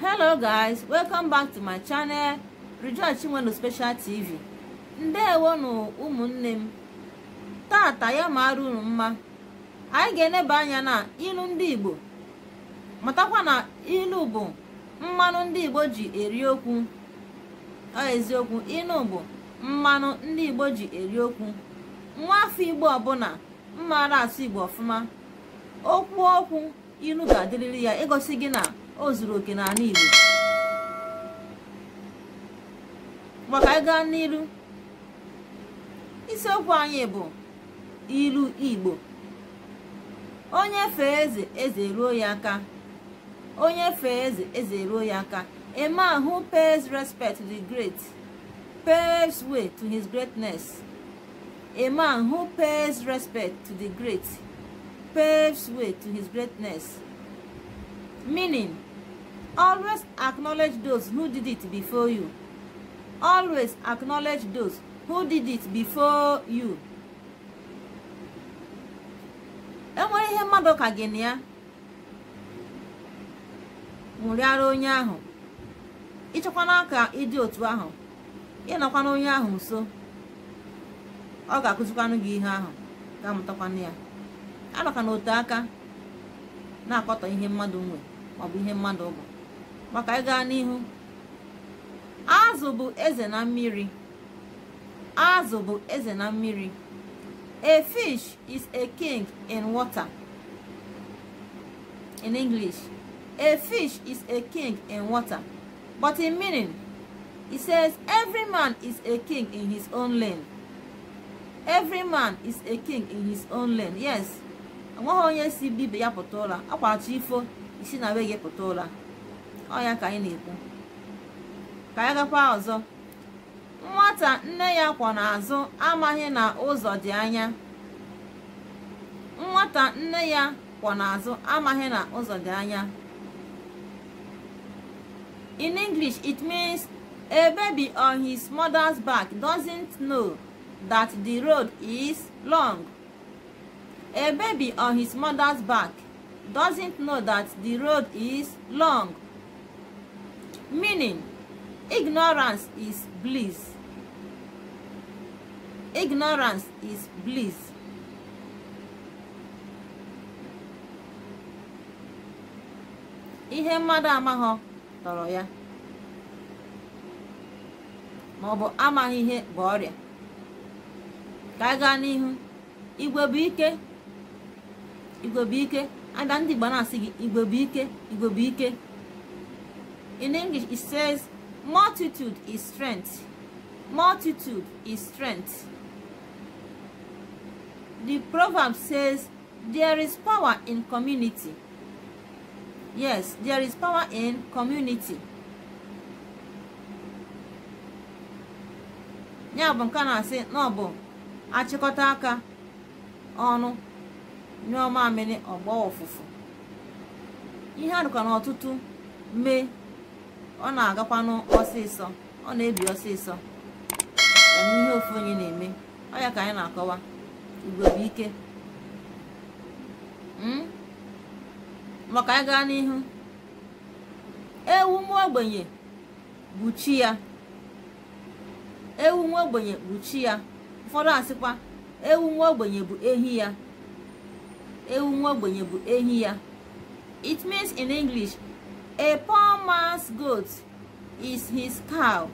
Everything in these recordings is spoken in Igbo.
hello guys welcome back to my channel rejoice chinwenu special tv ndewonu ụmụnne m tata ya mara unu mma anyị ga-eneba anya na ilu ndị igbo matakwa na ilu bụ mmanụ ndị igbo ji eri okwu eziokwu ilu bụ mmanụ ndị igbo ji eri okwu nwa afọ igbo ọbụla mmara asụ igbo ọfụma okwu okwu ilu ga-adịrịrị ya ịgosi gị na o zuru oke n'ala Igbo maka anyị gaa n'Ilu, isiokwu anyị bụ ilu Igbo onye fee eze eze ruo ya aka onye fee eze eze ruo ya aka a man who pays respect to the great pays way to his greatness a man who pays respect to the great pays way to his greatness Meaning, always acknowledge those who did it before you. Always acknowledge those who did it before you. enwere ihe mmadụ ka gị na ya nwụrịara onye ahụ ịchọkwana ka ịdị otu ahụ ịnọkwana onye ahụ nso ọ ga-akụzikwanụ gị ihe ahụ ga-amụtakwanụ ya na otu aka na-akọtọ ihe mmadụ nwe maọbụ ihe mmadụ bụ maka ịga n'ihu azụ bụ eze na mmiri azụ bụ eze na mmiri a fish is a king in water in english a fish is a king in water but in meaning he says every man is a king in his own lane every man is a king in his own lane yes enweghị onye si bibe ya pụta ụra akwarachi ifo isi na wee gị pụta ụra ọ ya ka anyị na-ekwu ka anyị gakwa ọzọ nwata nne ya kwọ n'azụ amaghị na ụzọ dị anya nwata nne ya kwọ n'azụ amaghị na ụzọ dị anya in english it means a baby on his mother's back doesn't know that the road is long a baby on his mother's back doesn't know that the road is long. Meaning, ignorance is bliss. Ignorance is bliss. Ihe mmadụ amaghọ tọrọ ya maọbụ amaghị ihe bụ ọrịa ka gaa n'ihu igwe igwe bụ ike ada ndị Igbo na-asị gị Igbo bụ ike Igbo bụ ike in English it says multitude is strength multitude is strength the proverb says there is power in community yes there is power in community ya bụ nke na-asị na ọ bụ achịkọta aka ọnụ nyụọ amịrị ọgbọ ụfụfụ ihe a dịkwa n'ọtụtụ mee ọ na-agakwanụ ọsịsọ ọ na-ebi ọsịsọ ihe ofu onye na-eme ọ ya ka anyị na-akọwa igwe bụ ike hmm? maka anyị gaa n'ihu ewu nwa ogbenye bụ chi ya ewu nwa ogbenye bụ chi ya ụfọdụ asịkwa ewu nwa ogbenye bụ ehi ya ewu nwa ogbenye bụ ehi ya it means in english a poor man's goat is his cow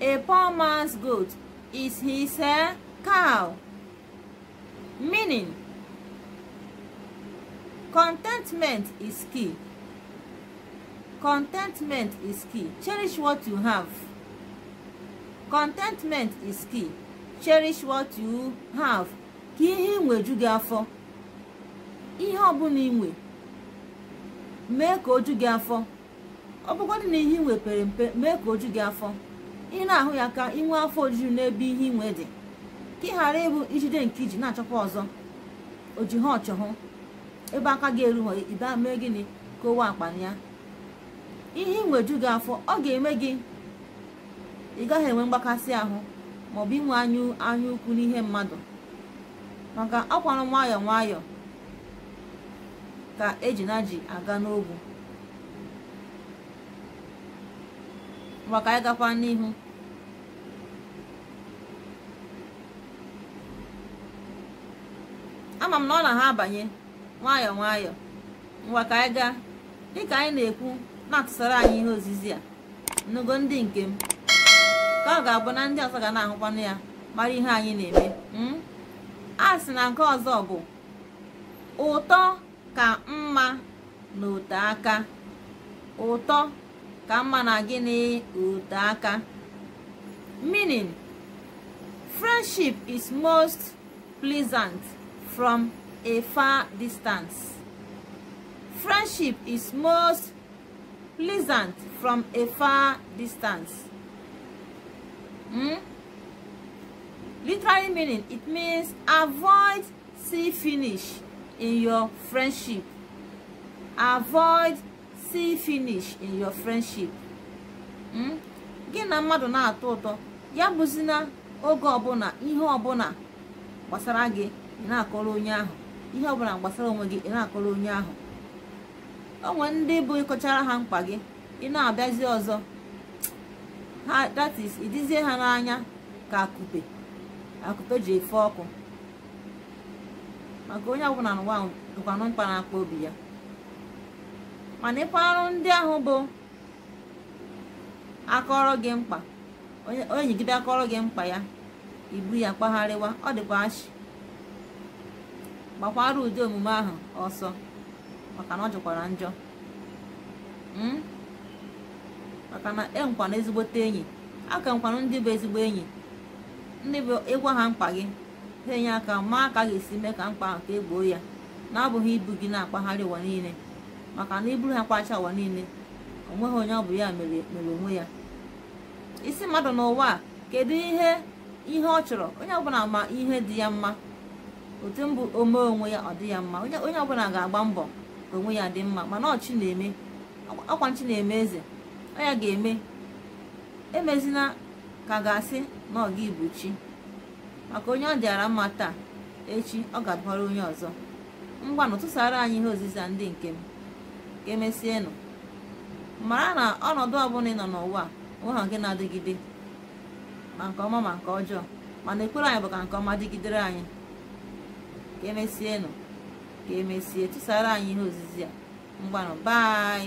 a poor man's goat is his uh, cow meaning contentment is key contentment is key cherish what you have contentment is key cherish what you have ka ihe nweju gị afọ ihe ọbụla inwe mee ka oju gị afọ ọ bụgodị na ihe inwe pere mpe mee ka oju gị afọ ị na-ahụ ya ka inwe afọ ojuju n'ebe ihe inwe dị ka ị ghara ịbụ ijide nke iji na-achọkwa ọzọ oji ha ọchọhụ ebe aka gị erughọ ibe mee gịnị ka owe akpa ya ihe inweju gị afọ ọ ga-eme gị ị gaghị enwe mgbakasị ahụ maọbụ inwe anya ukwu n'ihe mmadụ maka akwarụ nwayọọ nwayọọ ka ejina ji aga n'ogwu maka anyị gakwa n'ihu ama m na ọ na ha abanye nwayọọ nwayọọ ngwa ka anyị gaa dịka anyị na-ekwu na-atụsara anyị ihe ozizi a nnugo ndị nke m ka ọ ga-abụ na ndị ọzọ ga na-ahụkwanụ ya mara ihe anyị na-eme hmm? a sị na nke ọzọ bụ ụtọ ka mma na ote aka ụtọ ka mma na gịnị ote aka meaning friendship is most pleasant from a far distance friendship is most pleasant from a far distance hmm? literally meaning it means avoid see finish in your friendship. Avoid see finish in your friendship. Hmm? Gị na mmadụ na-atọ ụtọ ya bụzi na oge ọbụla ihe ọbụla gbasara gị na-akọrọ onye ahụ ihe ọbụla gbasara onwe gị ị na-akọrọ onye ahụ o nwere ndị bụ ịkọchara ha mkpa gị ị na-abịazi ọzọ that is idizie ha n'anya ka akupe akupe ji efe ọkụ maka onye ọbụla n'ụwa dụkwanụ mkpa na-akpa obi ya mana ịkwa arụ ndị ahụ bụ akọrọ gị mkpa onye nyegide akọrọ gị mkpa ya ibu ya kpagharịwa ọ dịkwa achị gbakwara ụdị omume ahụ ọsọ maka na ọ jụkwara njọ hmm? maka na enkwana ezigbote enyi aka nkwanụ ndị bụ ezigbo enyi ndị bụ ịgwa ha mkpa gị enye aka maa ka ga-esi mee ka mkpa nke egboo gboo ya na-abụghị ibu gị na-akpagharị ụwa niile maka na iburu ha kpacha ụwa niile onweghị onye ọ bụ ya mere onwe ya isi mmadụ n'ụwa a kedu ihe ihe ọ chọrọ onye ọbụla ma ihe dị ya mma otu mbụ omee onwe ya ọ dị ya mma onye ọbụla ga-agba mbọ ka onwe ya dị mma mana ọchị na-eme ọkwa nchi na-eme eze ọ ya ga-eme emezina ka ga-asị na ọga ga ibu chi maka onye ọ dịara mma taa echi ọ ga-adụbara onye ọzọ ngwanụ tụsara anyị ihe ozizi ndị nke m ka emesienụ mara na ọnọdụ ọbụla ị nọ n'ụwa ha nke na-adịgide ma nke ọma ma nke ọjọọ mana ekpere anyị bụ ka nke ọma dịgidere anyị ka emesienụ ka emesie tụsara anyị ihe ozizi a mgbanụ bai